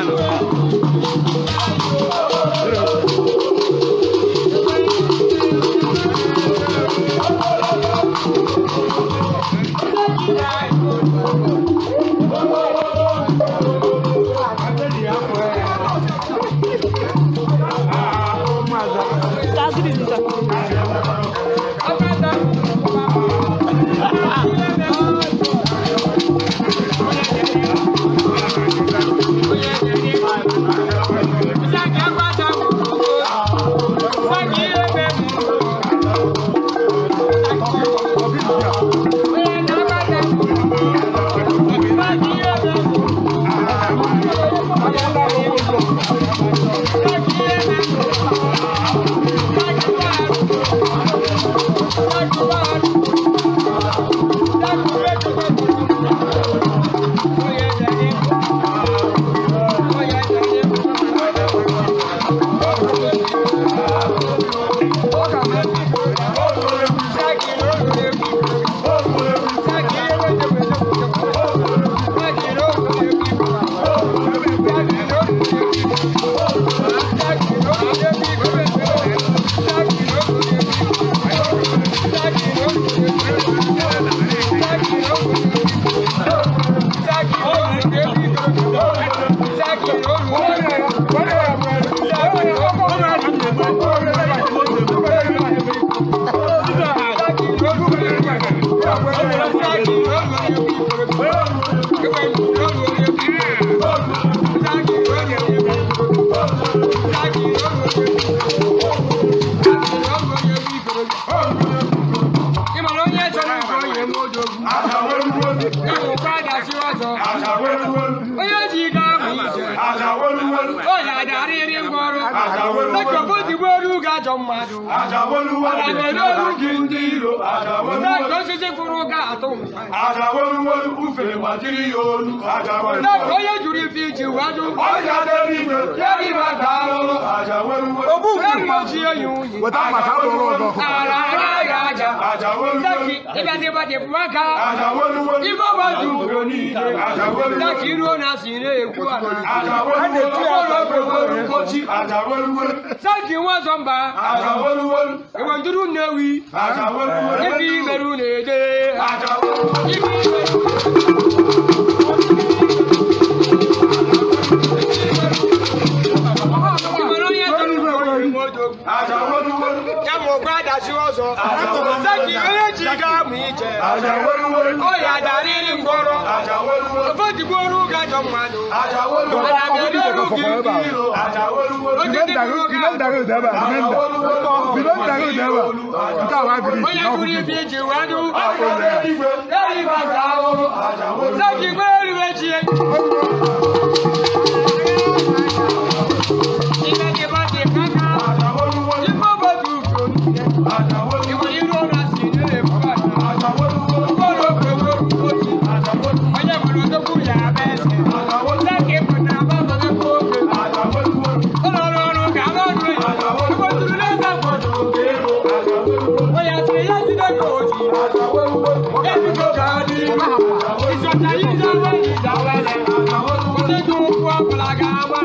Dominicano. n'odogu azaweluwolu ịwụkwa adachi ọzọ azaweluwolu ajọ mmadụ ajaolugwu gị ndị iro osisi kwụrụ ga atụ ajaolugwolu ufere ma jiri ya olu onye jụrụ ife iji wajụ ogbuji oyi nwunye ara agaghị aja ịbịazi ịgbaji maka ibe ọgbaju daki iruo na asị na-ekwu ala ọrụ obodo mkpochi saki nwa zọmba Aja àjà wolúwolú. ìwọ̀n dúró náà wí. àjà wolúwolú. ibi ìbẹ̀rù Aja àjà wolúwolú. ibi ìbẹ̀rù. aja wolwol oya dariri ngoro aja wolwol fodi boru ga jo mado aja wolwol oya dariri ngoro aja wolwol oja daru kinan daru daba kinan da kinan daru daba nta wa diri oya duri bi je wadu aja wolwol eri ba ga o aja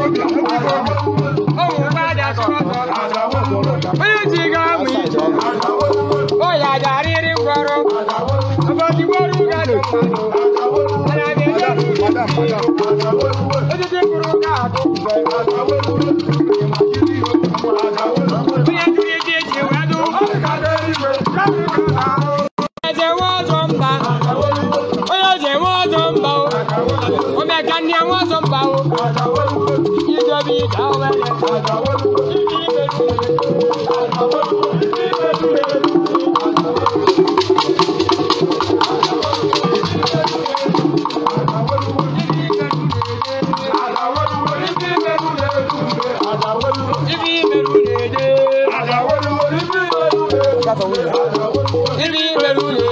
Ohun padà sọ̀rọ̀ sọ̀rọ̀. Bóyá ti ga mú ìjọ. Bóyá àjàrí rí gbọ́rọ̀. Ọba ti gbọ́rù gàdùn mọ́. Àlàyé lẹ́nu. Ó ti dín kúrú káàdùn. Bóyá ti rí di èjì ìwé dùn. Ẹ̀jẹ̀ wọ́n tó ń bá. Bóyá ẹ̀jẹ̀ wọ́n tó ń bá o. Omi ẹ̀ka ni àwọn sọ. Ibi Merule.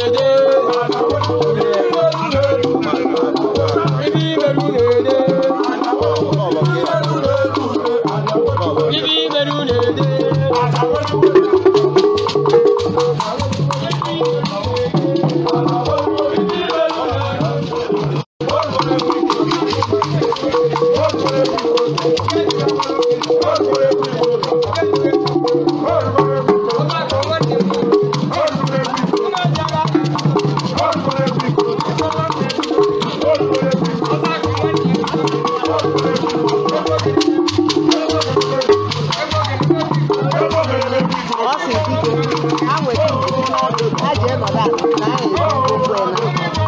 对了。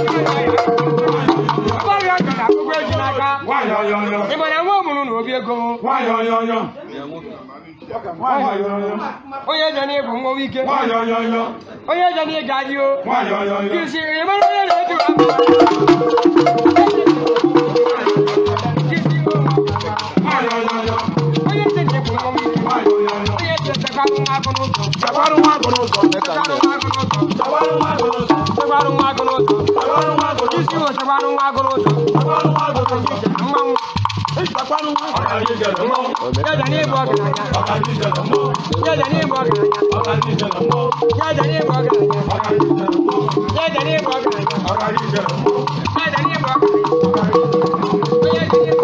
agụụ nwanyị onye onye onye jana bụ nwa ike onye jana ịga adị o kisiri mara onye na-eturu onye tete bụ nwa ike onye tete gbarụ nwa agụ n'ụzọ gbarụ nwa agụ n'ụzọ gbarụ nwa agụ n'ụzọ gbarụ nwa agụ n'ụzọ isi ụzọ gbarụ nwa agụ n'ụzọ mmanwụ ìpapánu jẹjẹ Yeah, ìbọn gàdá jẹjẹ ní ìbọn gàdá jẹjẹ ní ìbọn gàdá jẹjẹ ní ìbọn gàdá jẹjẹ ní ìbọn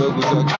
double talk.